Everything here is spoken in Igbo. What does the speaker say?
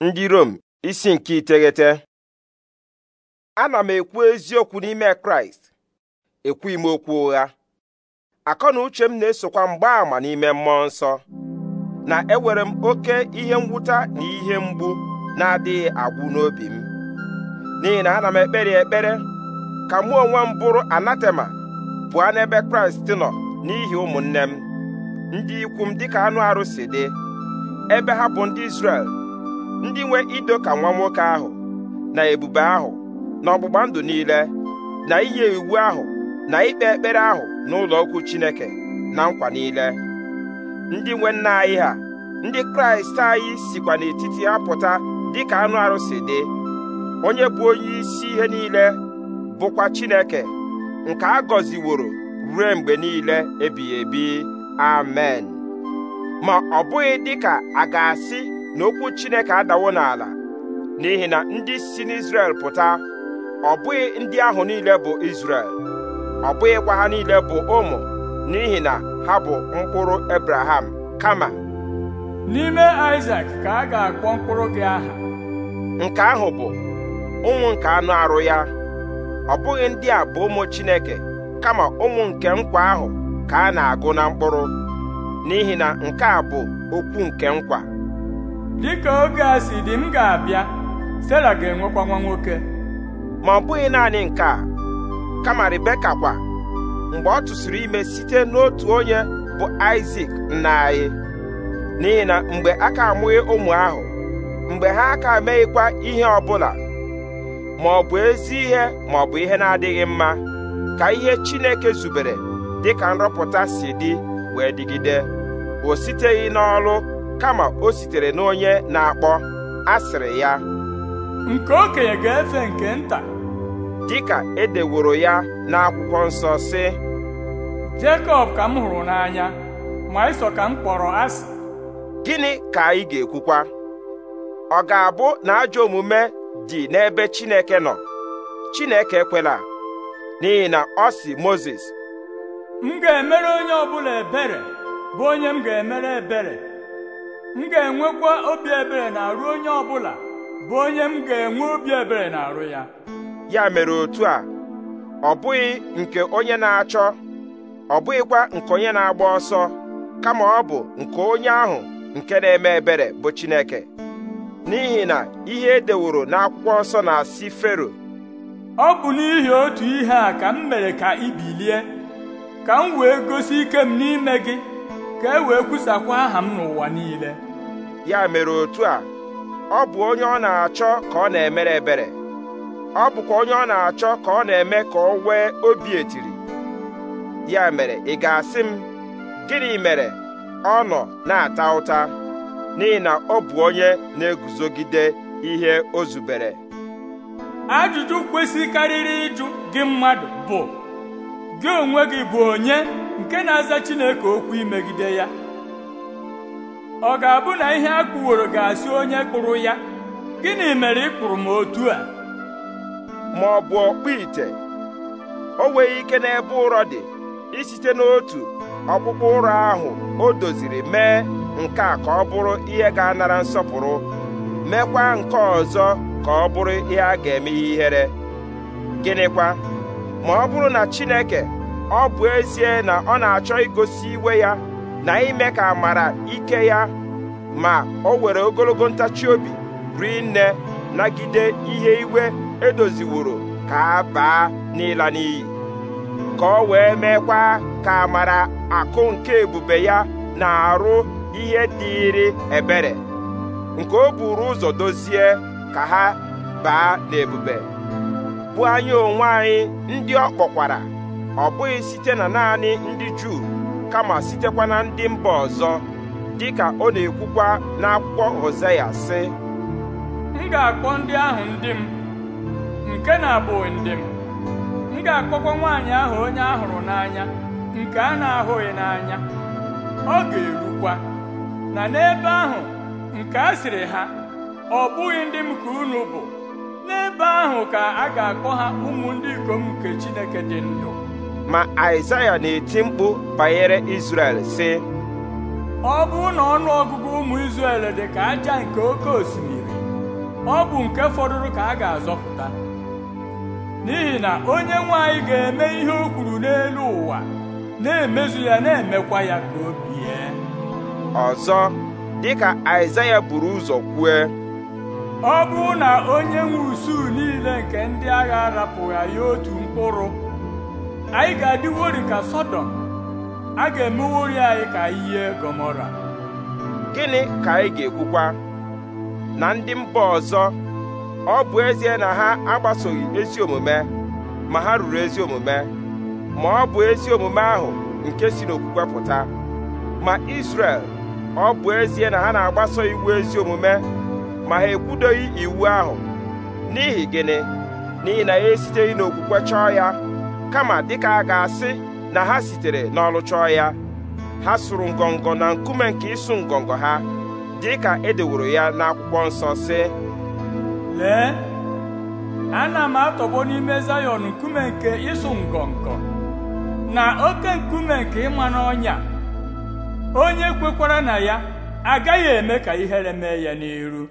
ndị Rom isi nke iteghete ana m ekwu eziokwu n'ime Kraịst ekwughị m okwu ụgha akọ na uche m na-esokwa mgbaàmà n'ime mmụọ nsọ na ewere m oke ihe ngwụta na ihe mgbu na-adịghị agwụ n'obi m n'ihi na ana m ekpere ekpere ka mụ onwe m bụrụ anatema pụọ n'ebe Kraịst nọ n'ihi ụmụnne m ndị ikwu m dịka anụ arụsị dị ebe ha bụ ndị Izrel ndị nwe ido ka nwa nwoke ahụ na ebube ahụ na ọgbụgba ndụ niile na inye iwu ahụ na ikpe ekpere ahụ n'ụlọ okwu Chineke na nkwa niile ndị nwe nna anyị ha ndị Kraịst anyị sikwa n'etiti ha pụta ka anụ arụsị dị onye bụ onye isi ihe niile bụkwa Chineke nke a gọziworo ruo mgbe niile ebighị ebi amen ma ọ bụghị dịka a ga-asị na okwu Chineke adawo n'ala n'ihi na ndị si n'Izrel pụta ọ bụghị ndị ahụ niile bụ Izrel ọ bụghịkwa ha niile bụ ụmụ n'ihi na ha bụ mkpụrụ Ebraham kama n'ime Isak ka a ga-akpọ mkpụrụ gị aha nke ahụ bụ ụmụ nke anụ arụ ya ọ bụghị ndị a bụ ụmụ Chineke kama ụmụ nke nkwa ahụ ka a na-agụ na mkpụrụ n'ihi na nke a bụ okwu nke nkwa dịka oge a si dị m ga-abịa Stella ga-enwekwa nwa nwoke ma ọ bụghị naanị nke a kama Rebeka kwa mgbe ọ tụsịrị ime site n'otu onye bụ Isak nna anyị n'ihi na mgbe a ka amụghị ụmụ ahụ mgbe ha aka meghịkwa ihe ọbụla ma ọ bụ ezi ihe ma ọ bụ ihe na-adịghị mma ka ihe Chineke zubere dịka nrọpụta si dị wee dịgide o siteghị n'ọlụ kama o sitere n'onye na-akpọ asịrị ya nke okenye ga-efe nke nta dịka edeworo ya n'akwụkwọ nsọ sị Jekọb ka m hụrụ n'anya ma Ịsọ ka m kpọrọ asị gịnị ka anyị ga-ekwukwa ọ ga-abụ na ajọ omume dị n'ebe Chineke nọ Chineke kwela n'ihi na ọ sị Mozis m ga-emere onye ọbụla ebere bụ onye m ga-emere ebere m ga-enwekwa obi ebere na-arụ onye ọbụla bụ onye m ga-enwe obi ebere na-arụ ya ya mere otu a ọ bụghị nke onye na-achọ ọ bụghịkwa nke onye na-agba ọsọ kama ọ bụ nke onye ahụ nke na-eme ebere bụ Chineke n'ihi na ihe edeworo n'akwụkwọ nsọ na-asị Fero ọ bụ n'ihi otu ihe a ka m mere ka ibilie, ka m wee gosi ike m n'ime gị ka e wee kwusakwa aha m n'ụwa niile ya mere otu a ọ bụ onye ọ na-achọ ka ọ na-emere ebere ọ bụkwa onye ọ na-achọ ka ọ na-eme ka ọ nwee obi etiri ya mere ị ga-asị m gịnị mere ọ nọ na-ata ụta n'ihi na ọ bụ onye na-eguzogide ihe o zubere ajụjụ karịrị ịjụ gị mmadụ bụ gị onwe gị bụ onye nke na-aza Chineke okwu imegide ya ọ ga-abụ na ihe a kpụworo ga-asị onye kpụrụ ya gịnị mere ị kpụrụ m otu a ma ọ bụ ọkpụ ite o nweghị ike n'ebe ụrọ dị site n'otu ọkpụkpụ ụrọ ahụ o doziri mee nke a ka ọ bụrụ ihe ga-anara nsọpụrụ meekwa nke ọzọ ka ọ bụrụ ihe a ga-eme ihere gịnịkwa ma ọ bụrụ na Chineke ọ bụ ezie na ọ na-achọ igosi iwe ya na ime ka amara ike ya ma o were ogologo ntachi obi rinne nagide ihe iwe edoziworo ka a baa n'ịla n'iyi ka o wee meekwa ka amara akụ nke ebube ya na-arụ ihe dịịrị ebere nke o buru ụzọ dozie ka ha baa n'ebube bụ anya onwe anyị ndị ọ kpọkwara ọ bụghị site na naanị ndị Juu kama sitekwa na ndị mba ọzọ dịka ọ na-ekwukwa n'akwụkwọ Hosea sị m ga-akpọ ndị ahụ ndị m nke na-abụghị ndị m m ga-akpọkwa nwaanyị ahụ onye ahụrụ n'anya nke a na-ahụghị n'anya ọ ga-erukwa na n'ebe ahụ nke a sịrị ha ọ bụghị ndị m ka unu bụ n'ebe ahụ ka a ga-akpọ ha ụmụ ndị ikom nke Chineke dị ndụ ma aịzaya na-eti mkpu banyere izrel sị ọ bụrụ na ọnụ ọgụgụ ụmụ izrel dị ka aja nke oke osimiri ọ bụ nke fọdụrụ ka a ga-azọpụta n'ihi na onye nwanyị ga-eme ihe o kwuru n'elu ụwa na-emezu ya na-emekwa ya ka o bie ọzọ dịka aịzaya buru ụzọ kwue ọ bụrụ na onye nwe usuu niile nke ndị agha arapụghị ya otu mkpụrụ anyị ga-adịwori ka sọdọm a ga-emewori anyị ka ihe Gomora. gịnị ka anyị ga-ekwukwa na ndị mba ọzọ ọ bụ ezie na ha agbasoghị ezi omume ma ha ruru ezi omume ma ọ bụ ezi omume ahụ nke si n'okwukwe pụta ma isrel ọ bụ ezie na ha na-agbaso iwu ezi omume ma ha ekwudoghị iwu ahụ n'ihi gịnị n'ihi na ya esiteghị n'okwukwe chọọ ya kama dịka a ga-asị na ha sitere n'ọrụ chọọ ya ha sụrụ ngọngọ na nkume nke ịsụ ngọngọ ha dịka edeworo ya n'akwụkwọ nsọ sị lee ana m atọgbọ n'ime zayọn nkume nke ịsụ ngọngọ na oke nkume nke ịma n'ọnya onye kwekwara na ya agaghị eme ka ihere mee ya n'iru